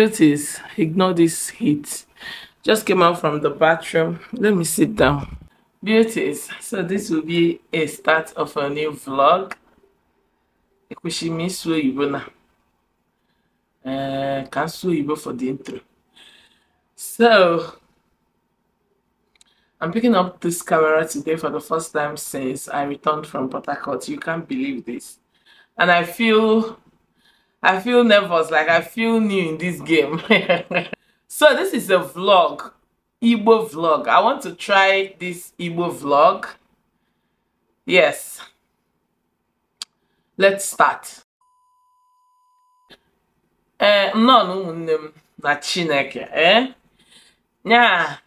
beauties, ignore this heat. Just came out from the bathroom. Let me sit down. Beauties, so this will be a start of a new vlog. Ekushimi Sue Ibona. Can Sue Ibo eh, for the intro. So, I'm picking up this camera today for the first time since I returned from Port Harcourt. You can't believe this. And I feel I feel nervous, like I feel new in this game. so this is a vlog, Igbo vlog. I want to try this Igbo vlog. Yes. Let's start. Eh, no, no, no. na Chineke, eh? Nyaa,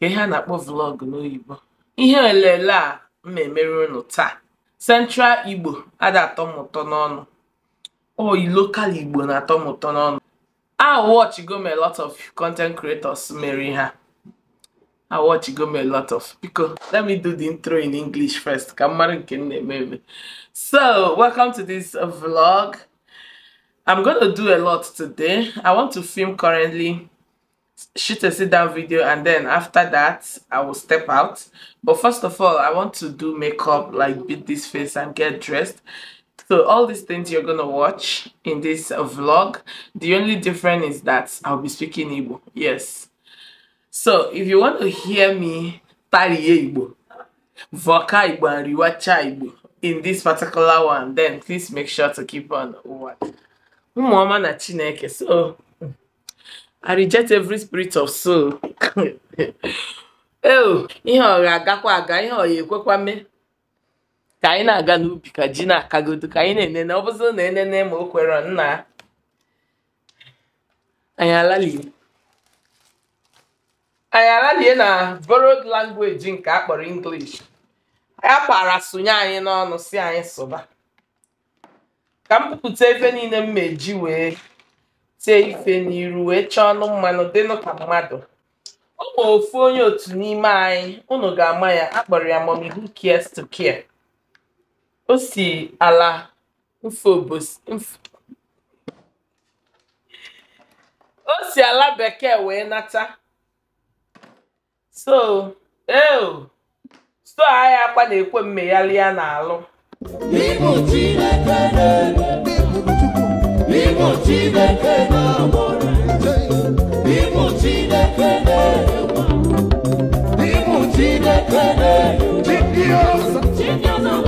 ka ihe a na-akpọ vlog n'oyibo. Ihe olele a m emere unu taa. Central Igbo, ada atọ m oh local igbo na-atọ m ụtọ I watch go me a lot of content creators marry her. I watch go me a lot of because let me do the intro in English first. maybe. So welcome to this vlog. I'm gonna do a lot today. I want to film currently, shoot a sit down video, and then after that I will step out. But first of all, I want to do makeup, like beat this face and get dressed. So all these things you're gonna watch in this vlog, the only difference is that I'll be speaking Igbo, yes. So if you want to hear me tariye Igbo, voka Igbo and riwacha Igbo in this particular one, then please make sure to keep on what? Umuoma na chineke, so I reject every spirit of soul. Oh, ihe ọ ga-agakwa aga, ihe ọ ya ekwekwa mee. ka anyị na-aga n'ubi ka ji na-akagodo ka anyị na-enene ọ bụzi na enene ma o kwere nna anyị alalie anyị alalie na borrowed language nke a kpọrọ English ya kpara sonye anyị n'ọnụ si anyị sụba ka m pụpụta efe niile m meji wee tee ife n'iru wee chọọ ọnụ mmanụ dịnụ ka mmadụ ọ ma ofu onye otu n'ime anyị unu ga-ama ya akpọrọ ya mommy who cares to care o si ala mfobos mf o si ala bekee wee nata so eo so agha akwa na-ekwe mmeghali ya na-alụ Chineke na-egbu Chineke na-agbọrọ Chineke na-egbu Chineke na-egbu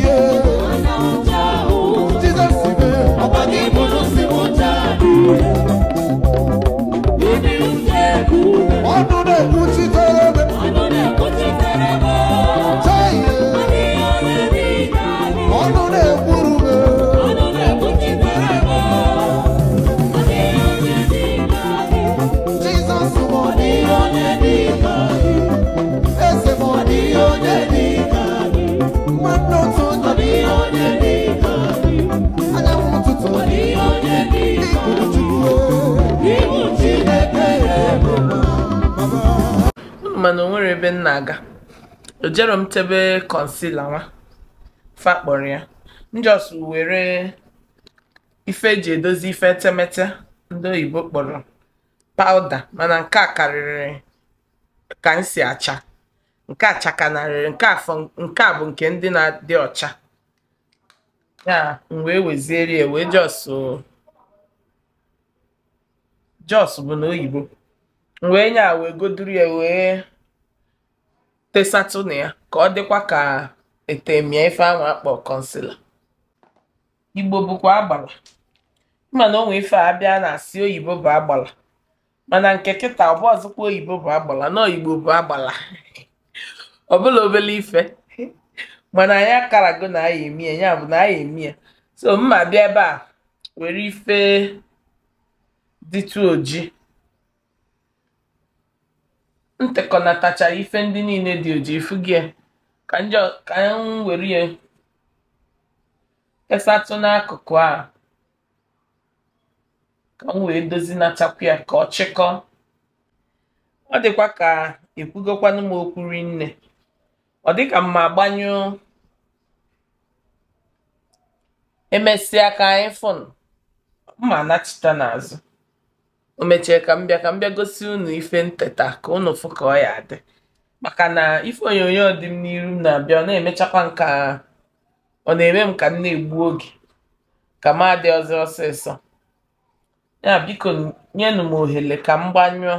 chebe concealer nwa fa kpọrọ ya njọs were ife eji edozi ife etemete ndị oyibo kpọrọ pawuda mana nke a karịrị ka m si acha nke a chakanarịrị nke afọ nke a bụ nke ndị na-adị ọcha ya m wee weziere ya wee jọs jọs bụ na oyibo wee nye a wee goduru ya wee tesatụnụ ya ka ọ dịkwa ka etemie ife ahụ akpọ kọnsila igbo bụkwa agbala mana onwe ife a bịa na-asị oyibo bụ agbala mana nke kịta ọbụ ọzọkwa oyibo bụ agbala na oyibo bụ agbala ọbụla obele ife mana anyị karago na aya emi ya bụ na aya emi ya so mma bịa ebe a were ife dịtụ oji m tachara ife ndị niile dị oji gị e. ka m were ya kesatụ n'akụkụ a ka m wee dozinachakwu ya ka ọ chịkọọ ọ dịkwa ka ekwugokwanụ m okwu rinne ọ dịka mma agbanyụ emesịa ka iPhone mma anachita n'azụ o mechie ka m ka m gosi unu ife nteta ka unu fụ ka ọ ya dị maka na ife onyonyo dị m n'iru na-abịa ọ na-emechakwa nka ọ na-eme m ka m na-egbu oge ka m adi ọzọ ọsịsọ ya biko nyenụ m ohere ka m gbanyụọ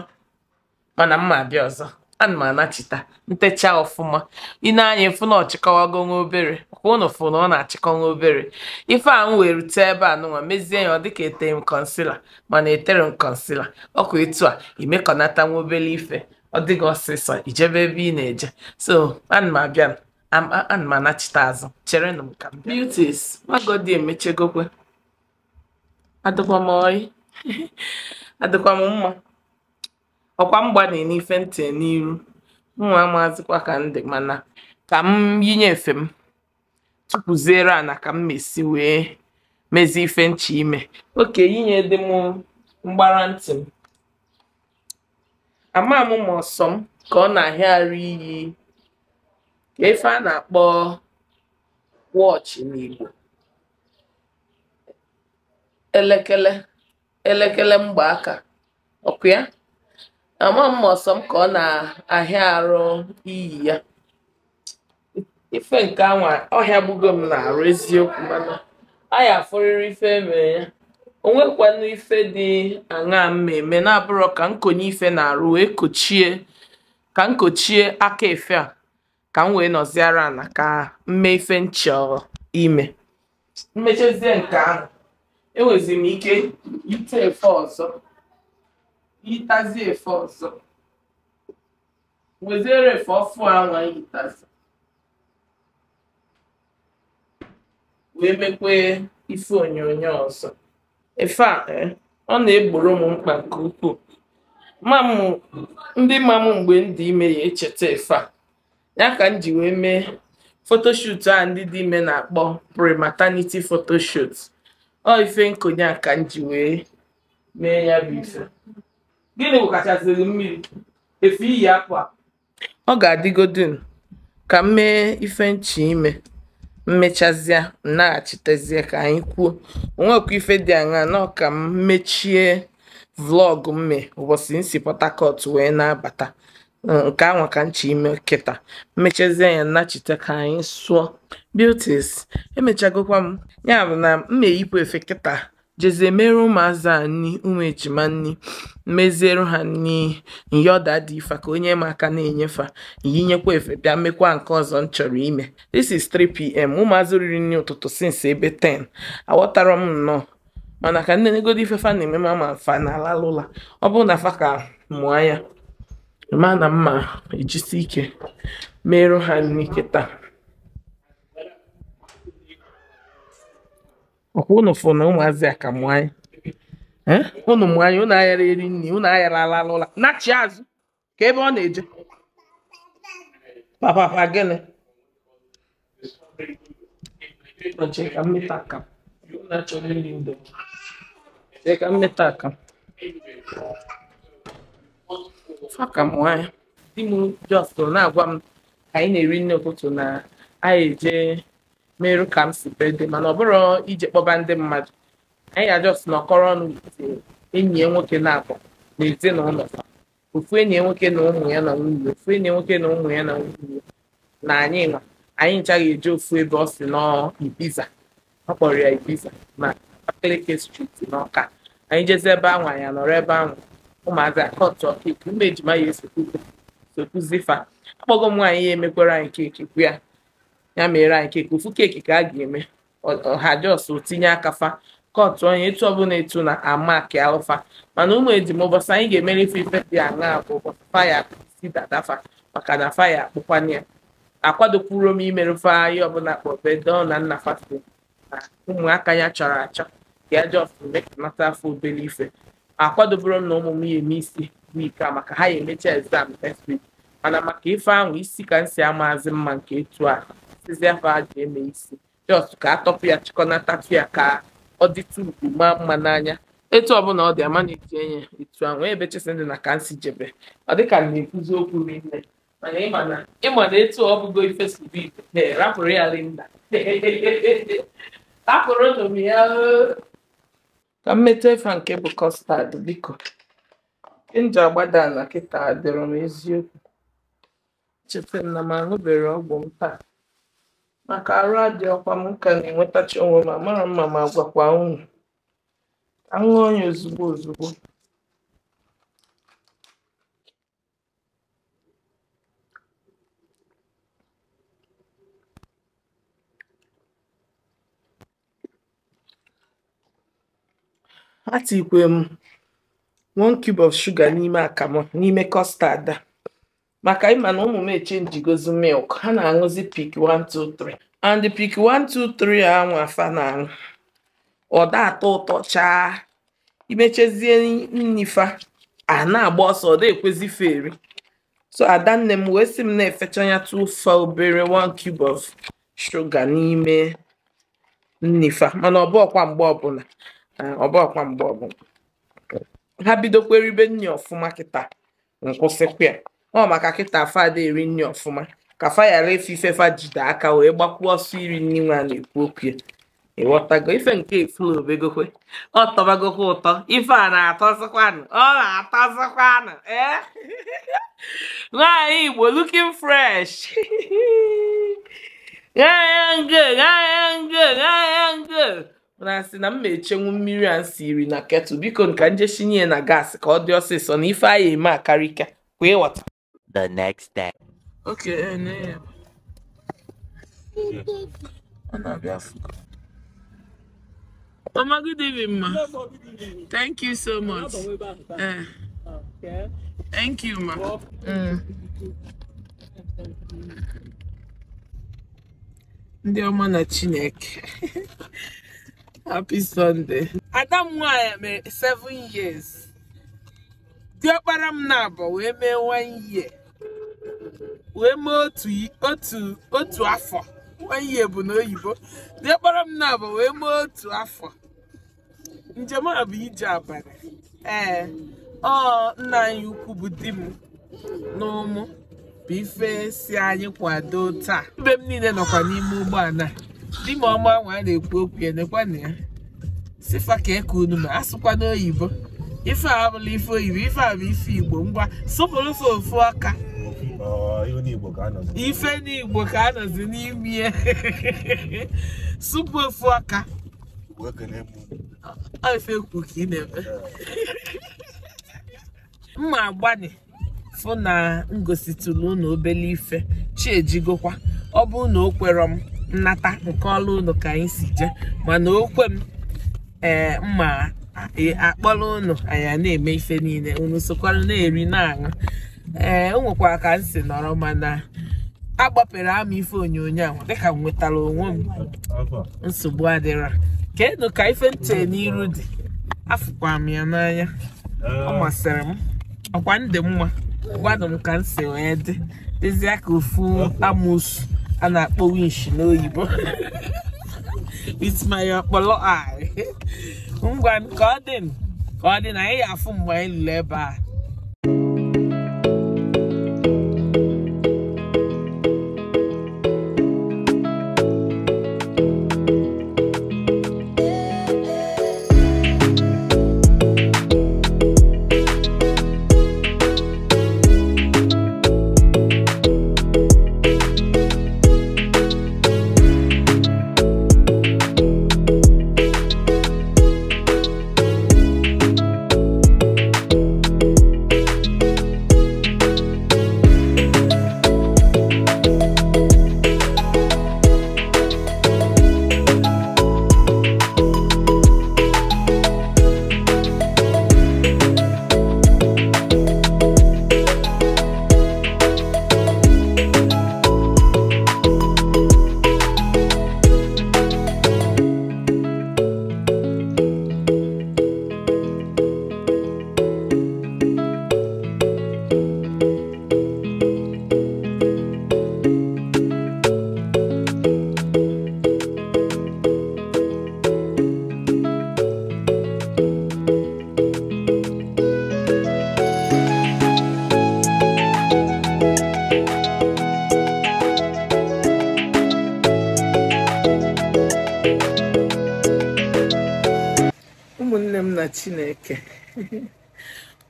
mana m ma abịa ọzọ ana m anachita ntecha ọfụma i nee anya ịfụ na ọchịkọwago nwa obere kwa ụnụ fụ na ọ na-achịkọ nwa obere ife ahụ m were tee ebe a nụnwa mezie ya ọ dịka etere m kọnsila mana etere m kọnsila ọkwa etu a imekọnata nwa obere ife ọ dịghị ọsịsọ ijebe ebe ị na-eje so ana m abịa ana m anachita azụ chere cherenụ m ka m bịa beauties magodi emechegokwe adịkwa m oyi adịkwa m mma ọkwa m n'ife ntị n'iru amazikwa ka m dị mana ka m yinye efe m a na ka m mesi wee mezie ife nchi ime oke yinye dị m mgbara ntị m ama m ma ọsọm ka ọ na-ahịarị iyi ka efe a na-akpọ wọchị n'Igbo elekele elekele mgbaaka ọkụ ya ama m ọsọ m ka ọ na-ahịa arụ iyi ya ife nke anwa ọhịa gbugo m na-arụ eziokwu mana a ya ife emere ya onwekwanụ ife dị aṅaa mma eme na-abụrọ ka nkonye ife na-arụ wee kochie ka nkochie aka efe a ka m wee nọziara na ka mme ife nchọ ime mmechezie nke ahụ enwezi m ike ite efe ọzọ yitazi efe ọzọ wezere efe ọfụ anwa yitazi wee mekwee ife onyonyo ọzọ efe a eh, ọ na-egboro m mkpa nke ukwuu ndị ma m mgbe ndị ime ya echeta efe a ya ka m ji wee mee fotoshut a ndị dị ime na-akpọ premataniti maternity photoshoot ọ ife nkonye a ka m ji wee mee ya bụ ife gịnị bụ gwụkachaziri mmiri efe iyi akwa ọ ga-adịgodin ka m mee ife nchi ime mmechazie nnaghachitezie ka anyị kwuo onwekwa ife dị aṅaa na ka m mechie vlọg mme ụbọchị nsi si wee na-abata mm, nke anwa ka nchi ime kịta mmechazie ya nnachite ka anyị sụọ beauties emechagokwa m ya bụ na m na-eyipụ efe kịta jeze mere ụmụazị a nni ụmụ ejima nni meziere ha nni nyoda dị ifa ka onye m aka na-enyefa yinyekwa efe bịa mmekwa nke ọzọ m chọrọ ime this is 3pm ụmụazị riri nri ụtụtụ since ebe 10 aghọtara m nnọọ mana ka nne negodi ife fa na-eme ma fa na alalụla ọ bụrụ na fa ka mụọ ya ma na mma ejisi ike merụ ha nri kịta ọkwa ụnụ fụ na ụmụazị a ka mụ anyị ụnụ mụ anyị ụnụ aghara eri nri ụnụ aghara alala ụla nachi azụ ka ebe ọ na-eje Papa gịnị cheka mmeta aka na-achọrọ iri ndo cheka mmeta aka faka m nwanyị di m jos na-agwa m ka anyị na-eri nne ụtụtụ na anyị eje meru ka m si dị mana ọ bụrụ ije kpọba ndị mmadụ anyị ajọs nọkọrọ ọnụ enyi ya nwoke na-akpọ na ezinụlọ ofu enyi nwoke na ụmụ ya na nwunye ofu enyi nwoke na ụmụ ya na nwunye na anyị nwa anyị ncha eje ofu ebe ọ si n'Ibiza ọ kpọrọ ya Ibiza na Abakaliki striti n'Ọka anyị jezi ebe ahụ anya nọrọ ebe ahụ ụmụazị akọtụ ọkeke ụmụ ejima ya esokuzi fa akpọgo m nwaanyị ya emekwara anyị keke ya ya mere anyị keke ofu keeki ka a ga-eme ọha jos tinye aka fa kọtụ onye etu ọbụla etu na ke alụfa mana ụmụ edim ụbọchị anyị ga-emere ife ife dị aṅaa bụ ụbọchị faya si dadafa maka na faya akpụkwana ya akwadopụrụ m imere faya ọbụla bedo na nna fatide na ụmụaka ya chọrọ achọ ka ya jos mekanata afọ obere ife akwadoburo m na ụmụ m ya eme isi wiki a maka ha ya emecha exam next week mana maka ife ahụ isi ka m si amazi mma nke etu a sizie afọ a ji eme isi just ka atọpụ ya chịkọnatatu ya ka ọ dịtụ ugwu maa mma n'anya etu ọbụla ọ dị ama na eti enye etu ahụ ebe chesi ndị na ka nsi jebe ọ dịka na-ekwuzi okwu rinne mana ịma na ịma na etu ọ bụgo ife si bụ ibe rapụrụ ya rinna rapụrụ nụ ya ka mmetụ efe nke bụ kọstad biko nje agbada na kịta dịrọ m eziokwu cheta na m aṅụbere ọgwụ m taa maka arụ adị ọkwa m ka na-enwetachi onwe ma mara mma ma gwakwa unu aṅụ onye ya ozugbo ozugbo atikwe m one cube of sugar n'ime akamụ n'ime kọstad a maka ịma na ụmụ m echenjigozi milk ha na-aṅụzi pik 123 and pik 123 a nwa afa na-aṅụ ọ atọ ụtọ chaa imechezie nnifa a na-agba ọsọ ọ da-ekwezi feri so adanne m wee sị m na-efecha ya tụfa obere 1 cube of shuga n'ime nnifa mana ọ bụ mgbe ọbụla ah, ọ mgbe ọbụla ha bidokweribe nni ọfụma kịta nkwụsịkwa ya ọ maka kịta fada eri nri ọfụma ka fa ghara ife ife fa jide aka wee gbakwuo ọsọ iri nri nwa na-ekwu okwu ya ịghọtago ife nke efulobegokwe ọ tọbagokwa ụtọ ife a na-atọzikwanụ ọ na-atọzikwanụ ee eh? nwaanyị Igbo looking fresh gg na sị na m ma-echenwu mmiri a nsiri na ketụl biko nka njeshinye na gas ka ọ dị ọsịsọ na ife anyị eme akarịka kwa ịghọta the next day. Okay, ne. Ana biafuka. Mama, good evening, ma. Thank you so much. Uh, thank you, ma. Dear mm. ndị ọma na happy sunday ada m nwanyị 7 years Dear Param na we wee 1 year wee mee otu otu afọ ihe bụ na oyibo diekpọrọ m na abụ wee mee otu afọ njem a bụ ije abalị ee ọ nna anyị ukwu bụ di m na ụmụ bụ ife si anyị kwado taa mbe m niile nọkwa n'ime ụgbọala di m ọma nwa a na-ekwu okwu ya nekwana ya sifa ka eke unu ma asụkwa n'oyibo ife a abụla ife oyibo ife a bụ ife igbo ngwa sụpụrụ ofe ofu aka ife n'igbo ka anọzi n'ime supu ofu ọka ife kwu ka ị na-eme mma agbani fụ na ngositụlụ ụnụ obele ife chi ọ bụ na o m nnata nke ọla unu ka anyị si jee mana okwe m ee eh, mma akpọrọ unu anyị na-eme ife niile unu sokwara na-eri na-aṅụ ee eh, o nwekwara ka m si nọrọ mana agbapere ama ife onyonyo ahụ dịka m nwetara onwe m nsogbu adịra kedu ka ife nche n'iru dị afụkwa m ya n'anya ọ eh. masịrị m ọkwa ndị mma gwadụ m ka m si wee dị dịzịa ka ofu amusu a na-akpọ winch n'oyibo with my ọkpọlọ ngwa ka ọ dị ka ọ dị na anyị ya afụ mgbe anyị lụrụ ebe a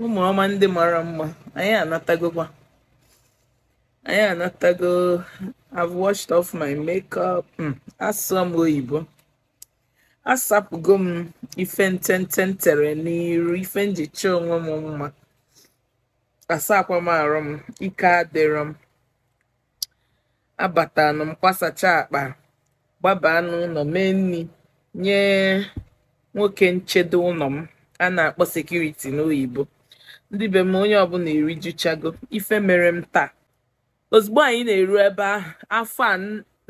ụmụ ọma ndị mara mma anyị anatagokwa anyị anatago I've washed off my makeup hmm, asụ m oyibo asapụgo m ife ntente tere n'iru ife njicha onwe m mma asakwa m arụ m ike adịrọ m abatanụ m kwasacha akpa gbaba n'ụlọ mee nri nye nwoke nchedo ụlọ m a na-akpọ sekuriti n'oyibo ndị be m onye ọbụla erijuchago ife mere m taa ozugbo anyị na-eru ebe ahụ afọ a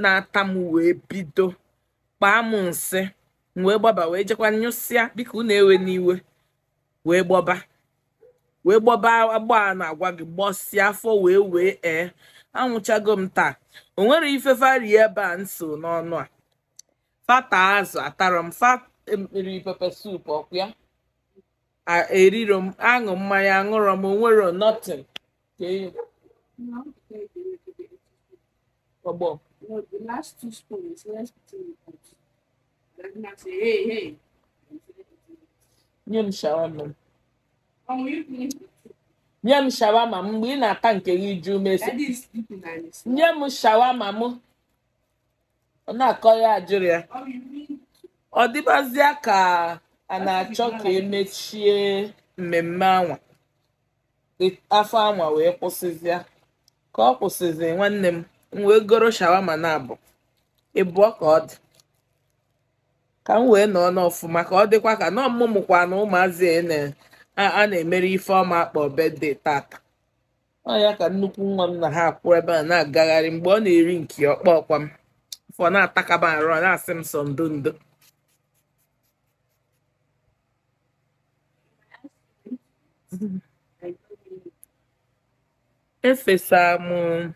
na-ata m wee bido kpaa m nsị wee gbaba wee jekwa nyụsịa biko na ewe n'iwe wee gbọba wee gbọba agba na-agwa gị gbọsịa afọ wee wee ee anwụchago m taa o nwere ife fari ebe a nso n'ọnụ a fata azụ atara m fa e, pepe sup ọkụ ya eriro m aṅụ mmanya aṅụrọ m onwero nothing ọgbọ nye m shawama nye m shawama m mgbe ị na-ata nke gị ju mesi nye m shawama m ọ na-akọ ya ajụrụ ya ọ dịbazịa ka a na-achọ ka emechie mmemme anwa afọ anwa wee kwụsịzịa ka ọ kwụsịzi nwanne m m wee goro shawama na abụ ịbụọ ka ọ dị ka m wee nọọ n'ọfụma ka ọ dịkwa ka nọọ mmụmụkwa na ụmụazị a na-emere ife ọma akpọ bede tata ọ ya ka nnukwu nwa m na ha akwụ ebe a na-agagharị mgbe ọ na-eri nke ọkpọ ọkwa m fọ na-atakaba arụ na-asị m sọ ndo ndo efesara m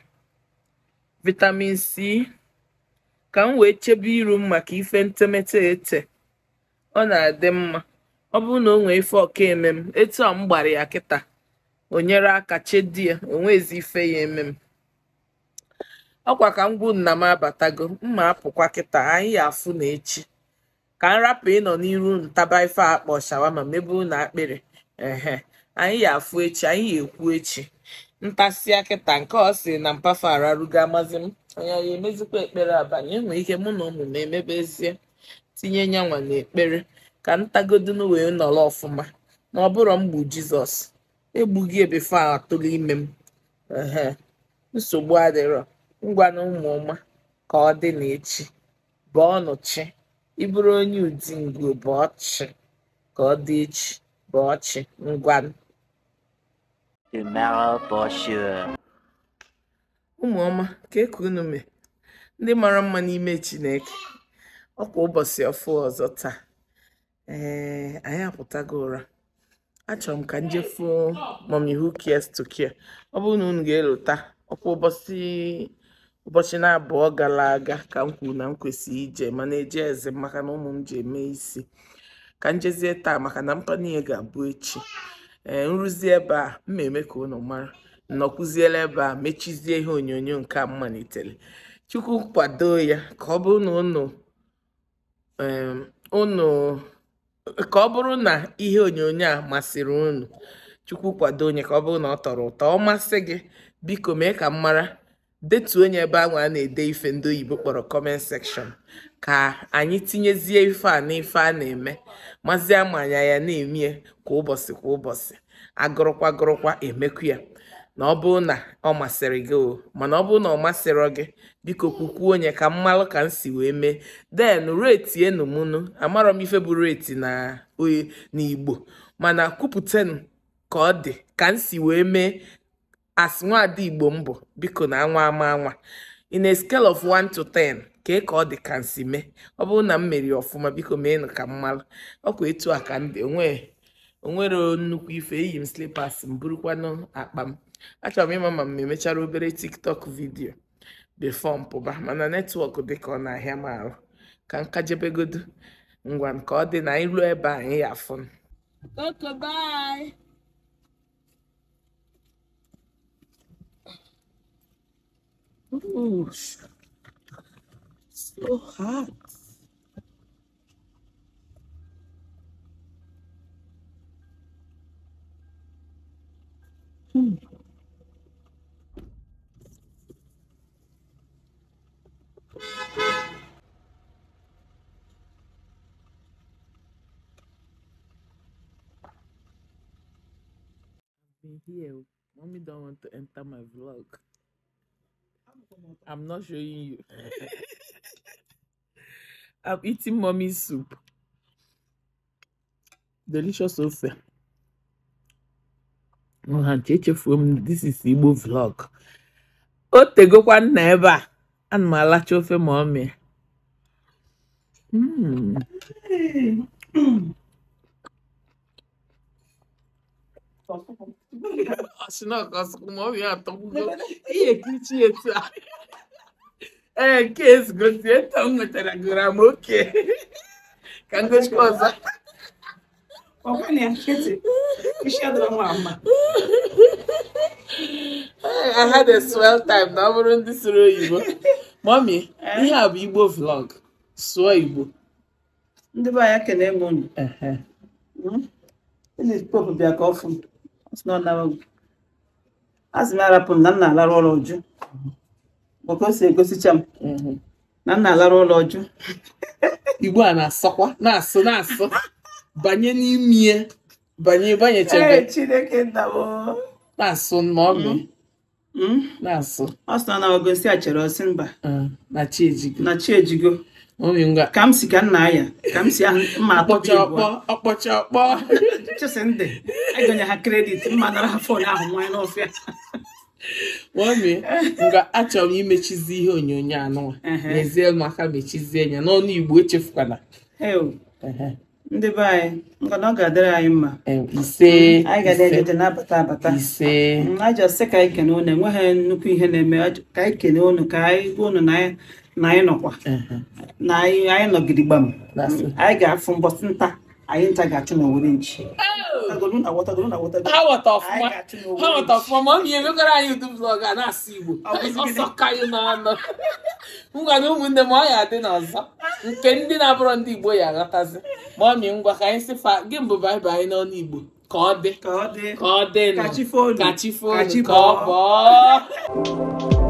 vitamin c ka m wee chebe iru m maka ife ntemete ete ọ na-adị mma ọ bụrụ na o nwee ife ọka eme m etu a m gbara ya kịta o nyere aka chedie onwezi ife ya eme m ọkwa ka m gwu nna m abatago mma apụkwa kịta anyị ya afụ na echi ka m rapụ ịnọ n'iru ntaba ife akpọ shawama meburu na akpịrị ehe anyị ya afụ echi anyị ya ekwu echi ntasia kịta nke ọ sị na mpafa ararugo amazi m anya ya emezikwa ekpere abalị enwere ike mụ na ụmụ m emebezie tinye nyanwa ekpere ka ntagodunu wee nọrọ ọfụma na ọ bụrụ mgbu jizọs egbughị ebefe a atụrụ ime m nsogbu adịrọ ngwa na ụmụ ka ọ dị n'echi ọnụ chi ịbụrụ onye udi ngo bụ chi ka ọ dị echi bụ ọchị ngwa ụmụ ọma ka eke unu mee ndị mara mma n'ime chineke ọkwa ụbọchị ọfụ ọzọ taa ee anyị apụtago ụra achọrọ m ka m jefuo mọmi who to ọ bụrụ na unu ga-elota ọkwa ụbọchị ụbọchị na-abụọ gara aga ka m kwuru na m kwesịrị ije mana eje eze maka na ụmụ m ji eme isi ka njezie taa maka na niile ga-abụ echi ee eh, nrụzi ebe a ma eme ka ụnụ mara nnọkwụziela ebe a mechizie ihe onyonyo nke a mmalitere chukwu kwado ya ka ọ bụrụ na ihe onyonyo a masịrị ụnụ chukwu kwado onye ka ọ bụrụ na ọ tọrọ ụtọ ọ masị gị biko mee ka m mara detuo onye ebe anwa a na-ede ife ndị oyibo kpọrọ comment section ka anyị tinyezie ife a n'ife a na-eme mazi amanya ya na-emie kwa ụbọchị kwa ụbọchị agụrụkwa gụrụkwa emekwu ya na ọ bụrụ na ọ masịrị gị o mana ọ bụrụ na ọ masịrị gị biko kwukwuo onye ka mmalụ ka m si wee mee den reti enumunu amarọ m ife bụ reti na n'igbo mana kwupụtanụ ka ọ dị ka m si wee mee as nwaada igbo m bụ biko na anwa ama anwa in a scale of 1 to 10 kee ka ọ dị ka nsi mee ọ bụrụ na m meriri ọfụma biko mee nụ ka m ọ ọkwa etu a ka ndị onwere nnukwu ife eyi m slipas m burukwanụ akpa m achọrọ m ịma ma m emechara obere tiktok vidio before m pụba mana netwọk dị ka ọ na-ahịa m arụ ka nkajebegodo ngwa nke ọ dị na iru ebe anyị ya afụ Ooh, so hot. Hmm. Here, mommy don't want to enter my vlog. I'm not showing you. I'm eating mommy's soup. Delicious ofe. Nhacheche from this is Igbo vlog. Oh, tegokwa nna ebe a. Ana m alacha ofe ma ọmịa. Mm. não Aşina kasılmam ya tavuğu. é kiçi yeter. Herkes gözüye tam metara gram okey. Kangoş koza. Opa ne hareketi? İşe adamı ama. I had a swell time. Now we're on this road, Mommy, we have Igbo vlog. Sụọ Igbo. não be anyị kelee m unu. Ị na pop bịa ka ọ azị m arapụ m na m na-alarụ ụlọ ọjụ maka o si egosicha m na m na-alarụ ụlọ ọjụ igbo a na-asọkwa na-asụ na-asụ banye n'ime banye banyechebe na-asụ ma ọ mm. mm. na-asụ ọ sị na ọ gosi a chere ọsị na chi ejigo Oh, ka m si ka nna anya ka m si ahụ mma akpọcha ọkpọ ọkpọcha ọkpọ chesindị egonye ha kredit mma nara ha fon ahụ nwanyị n'ọfịa nwaomi nga achọrọ m imechizi ihe onyonyo anụwa n'ezie maka mechizie anya n'ọnụ igbo echefukwana ndị be anyị ngana ọ ga-adịrị anyị mma ise mm, anyị ga-adịrị na-abata abata ise mm, ajọ sị ka anyị kene unu enweghị nnukwu ihe na-eme ka anyị kene unu ka anyị gwa unu na anyị na anyị nọkwa na anyị nọgide gbam anyị ga-afụ mbọsị nta anyị nta ga-achụ oh! na owere nchi ha nweta ọfụma ma ọ bụ ihe megoro anyị udu blọg a na-asụ Igbo ọsọ kaị n'ọnụ ngwa na ụmụnne m ọ ya adị n'ọzọ nke ndị na-abụrọ ndị Igbo ya aghọtazi ma ọ mị ngwa ka anyị sị fa gị mbụ baịbụl anyị n'ọnụ Igbo ka ọ dị ka ọ dị ka chi fonu ka ọ bọọ